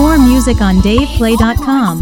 more music on DavePlay.com.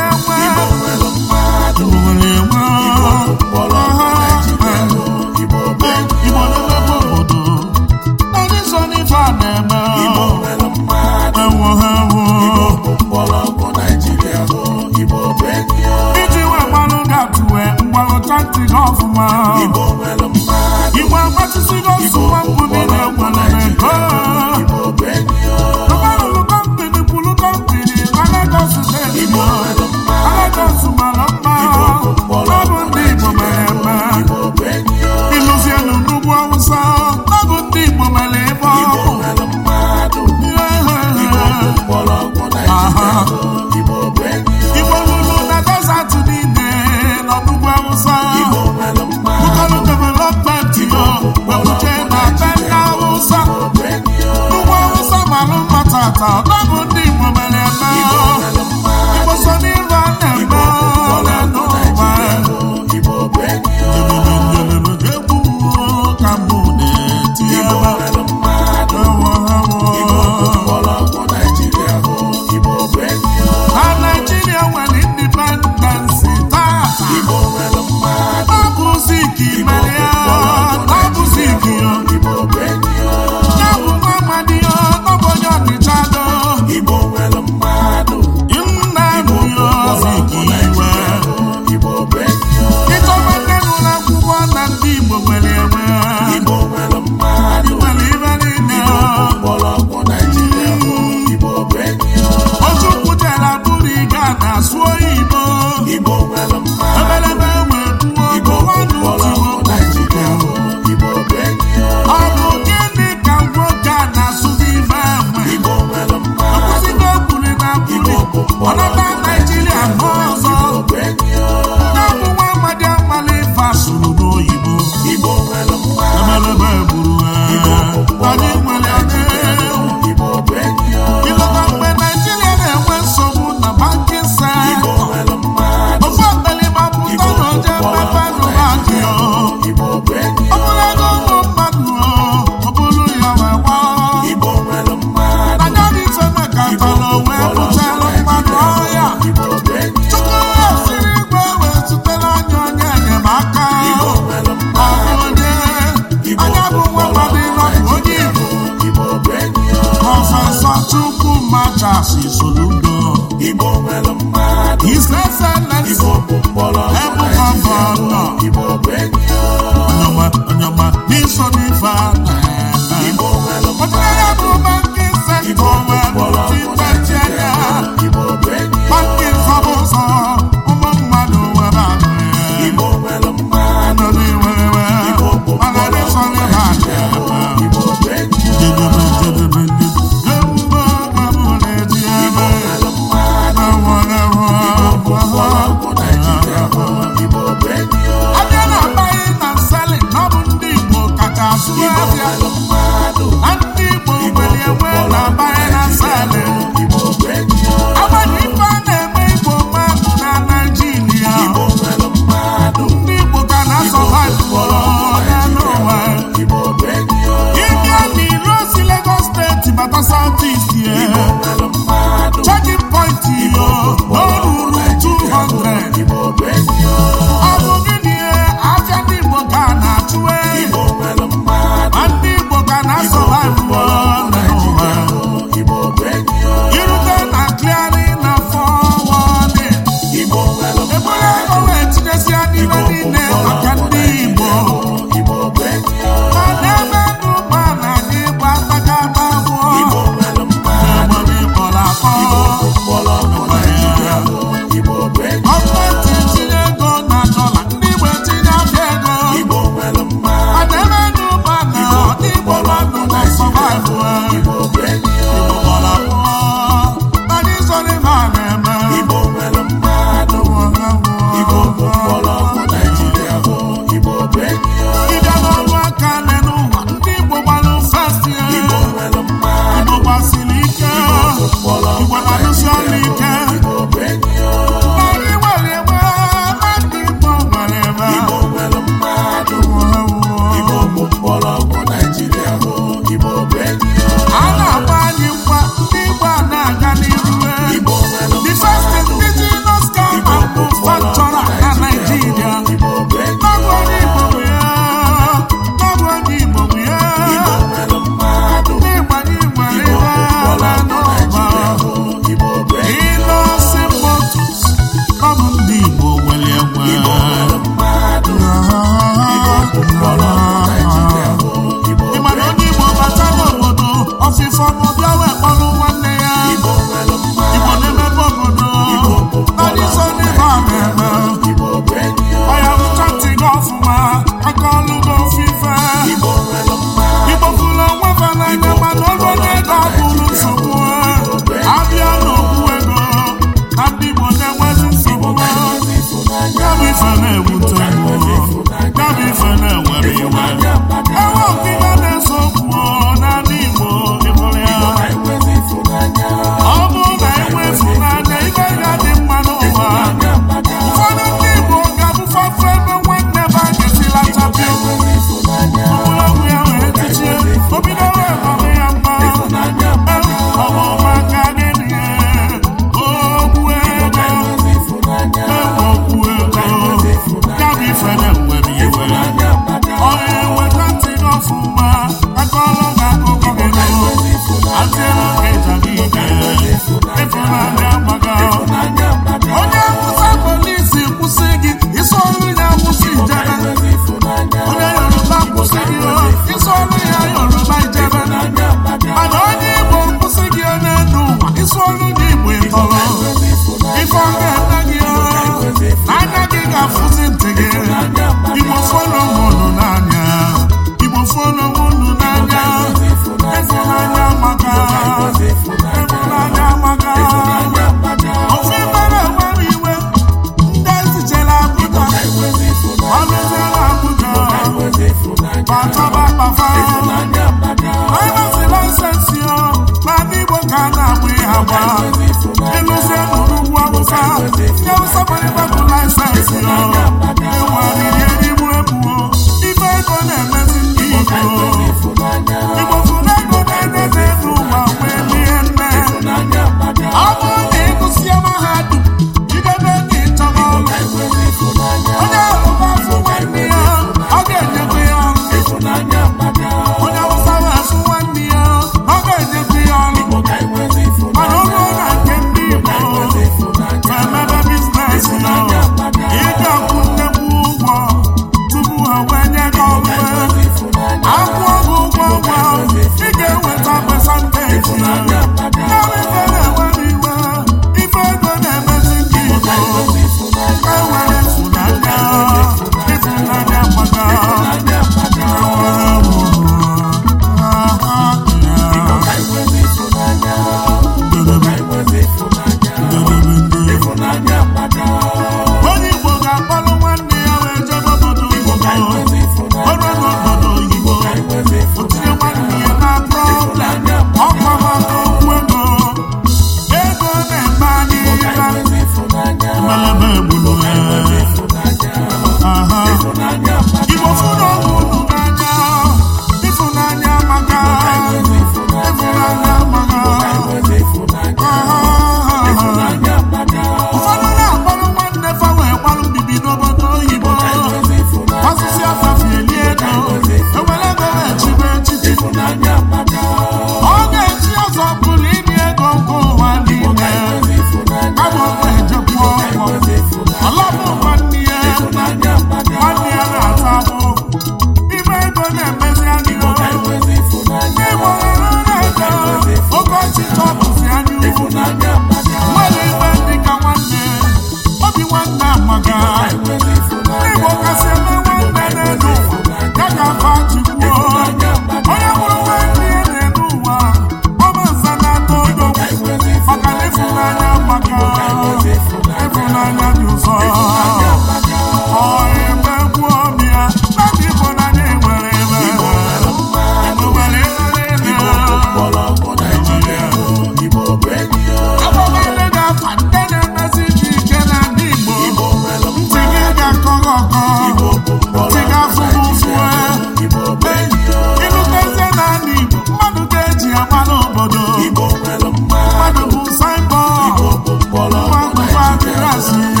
materasị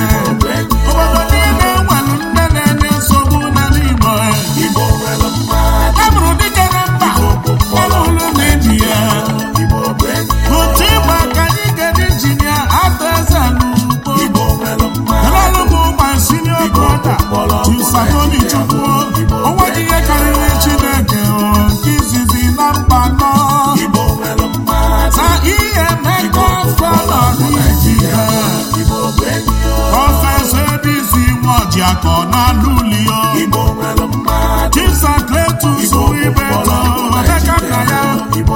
ọbịa ka ọ na-alụ ulio chipsakletus ibe tọbeka ka ya kedu ibe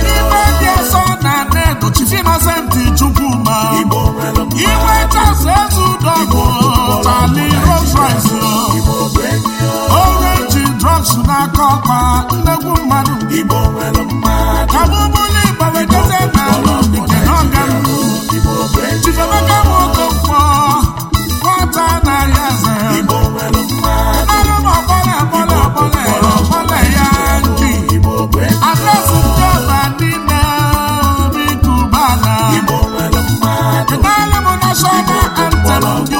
ndị ọsọ na ned chifinasenti chukwuma igwe chasa ezu dọbụ tali rosrise orenji drugs na akọkpa nnegwu mmadụ Shaka and Talandu.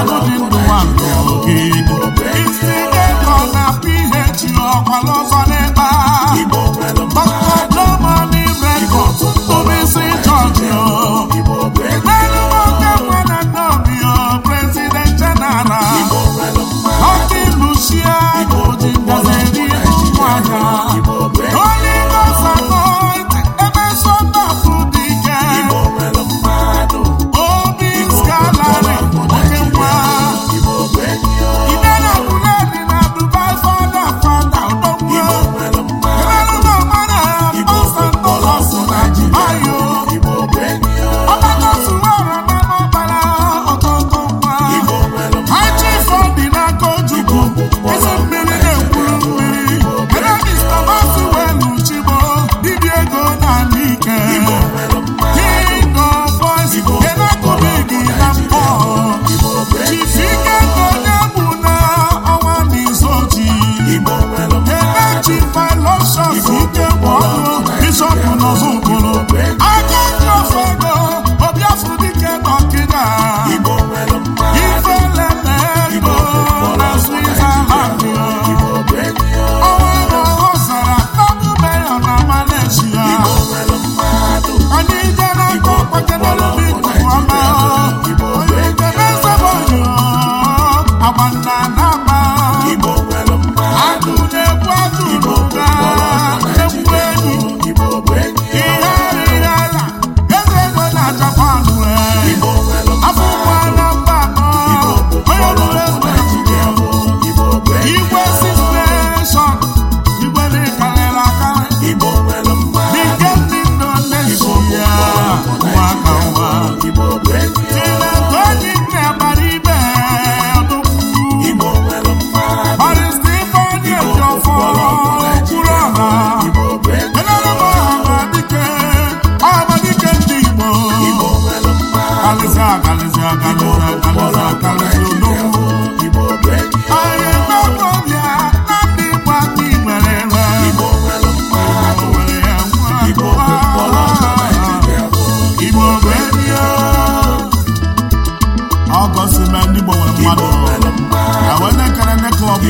Agụdị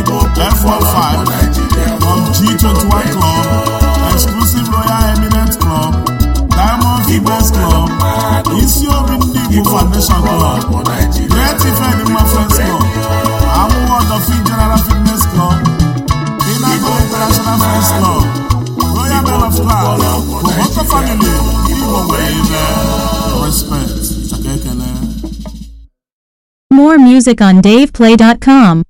Igbo F15 from G21 Club, Exclusive Royal Eminent Club, Diamond Fibers Club, Isi Obi Ndị Igbo Foundation Club, Great Ifedima Friends Club, Amụwa Ọdọfi General Fitness Club, Inago International Friends Club, Royal Men of God, Koboko Family, Ndị Igbo nwere respect, kekele. More music on DavePlay.com.